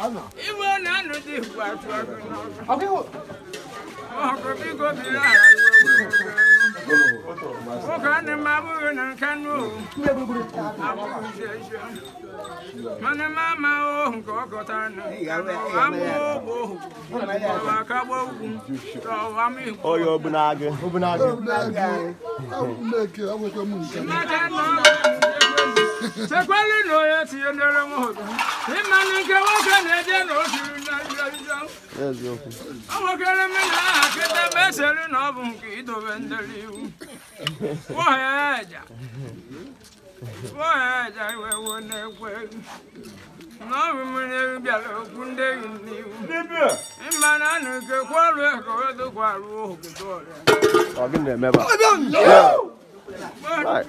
Iwe na anụ dị igwe atụ ọkụ n'ọkụ. Ọkụ biko biri ala Nwoke ọnụ m abụghị na nke nụ abụghị ezi mana m ama ohu nke ọ gọtara ohu ọwa akagbo ugwu na chekwara na onye tinyere m ụtọ ịmanụ nke nwoke na-eje na ojirinawokere mmiri aha kịta ma esere na ọ bụ nke idobe ndere iwu weheja iwe wuo na-ekwe na ọ bụ mmiri eru bịara okwu ndị eyi n'iwu ịmanụ anụ nke kwọrụ ego edokwaruo ogodo ọrịa Right.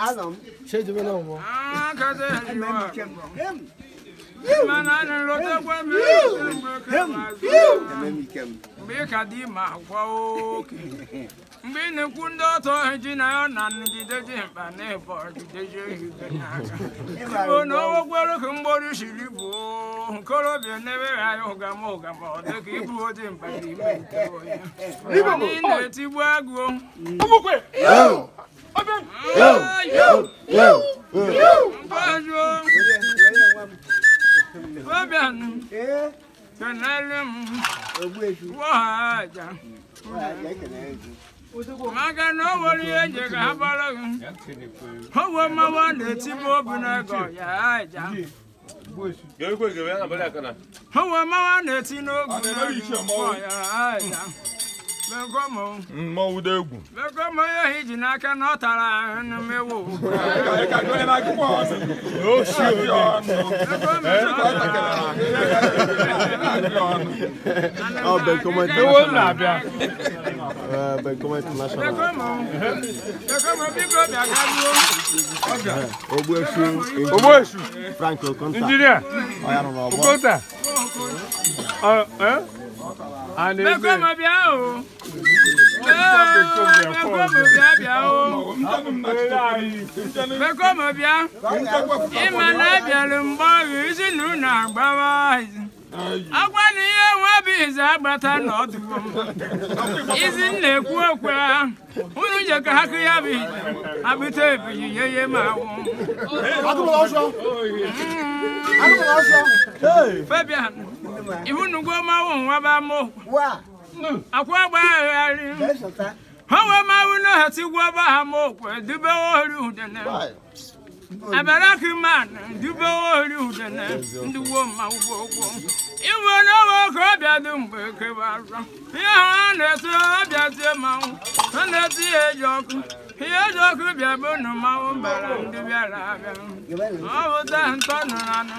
Adam. Ṣé ìdúró náà wọ? Kẹ́sẹ̀ mgbe ka dị ma gwa oke mgbe ị na-ekwu ndị ọtọ ji na ya na nrụgide ji mkpa na ịbọ jideji ehige n'aka igbo na owekwere ka mgbori siri bụ nkorobịa na-eweghị anya ụgama ụgama ọ dị ka ịbụ ojii mkpa ime agụụ kenelem waja maka na o nwere ihe eji ka ha bara gị owe mmawa na-etibe obi n'ego ya meu ụda egwu ya hiji n'aka na ọ lá no meu bem como é que eu amo lá, Bia. Bem como é que nós chamamos. O é O Boechu. Franco, conta. Engenheiro. Olha, não, não. Conta. Ah, é? Mekoma bịa o. Mekoma bịa bịa o. Mekoma bịa. Ịma na abịalụ mgbe ọghụ isi na agbawa agwa na ihe nwa bụ ize agbata n'ọdụ izi m na-ekwu okwe unu je ka ha kụ ya bụ abụta ebili ye ye ma mm. awụ ibunugo mawu nwaba mụ hmm. akwa gbagharị ha wee mawu na ha tigwa ba ha mụ okwe dubewe ori udene abarakiman dubewe ori udene ndị gwo mmanwụ gbogbo iwe na owe ka ọ bịa dị mgbe kebara ihe ahụ a na-ete ọbịa tie mmanwụ a na eti ihe eji ọkụ ihe eji ọkụ bịa bụ na mmanwụ bara ndị bịara abịa ọ bụta ntọ nụrụ anụ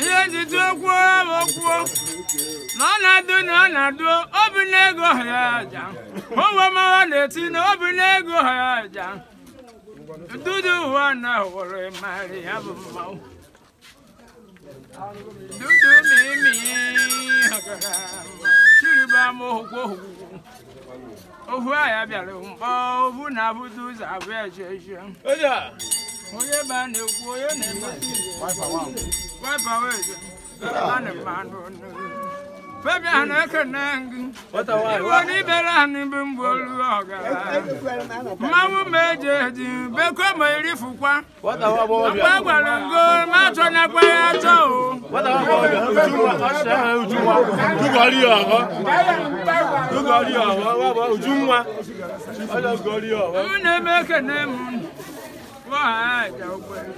ihe ntutu okwu okwuo na ọ na-adụ na ọ na-adụ obi n'ego ha ya aja ụwe mawa na-eti na obi n'ego ha ya aja dudu ụwa na wụrụ marị ya bụ mmanwụ dudu mimi chiriba m ohukwu ohukwu ohu ya bịara mgbe ohu na abụdụ ụzọ abụọ ejeje onye be a na-ekwu onye na-emete igbo Baby, I know can hang. What a while. What if there are even Boluga? Mamma major, Become my refuqua. What a while. Match on a quay. a wahaja ukwelu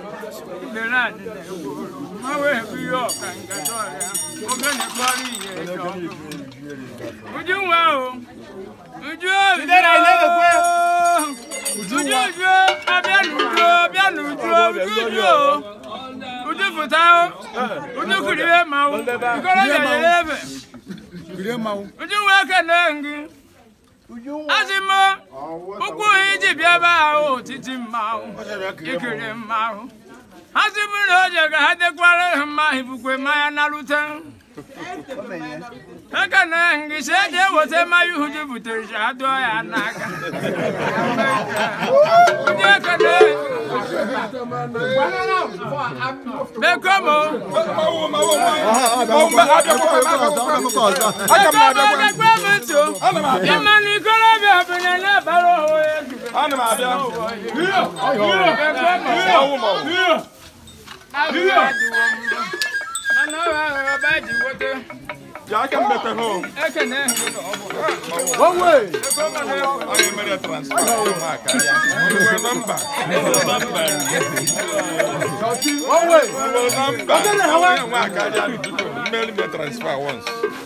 ngelandile ekulu mawebiyo kangatoya ogenekwaliye eto ujuwawo ujujujujuju abyalujo byalujo ujujo ujufutawo ujukuliwe azimo ukwu iji bịaba ahụ otiti mmanwụ ikiri mmanwụ asị bụrụ na o je ka ha dekwara ha mma ibukwe mmanya narute aka na ngịsị eji eweta mmanya ihu ji butere ji ha dụọ ya n'aka bekomo bekomo nso na ikorobịa bụ na na-abara onwe Yeah, I can better home. One way. I can ready to transfer. Remember. One way. Remember. Remember. transfer. Remember. Remember.